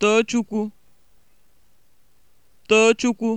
Tochukwu! Tochukwu!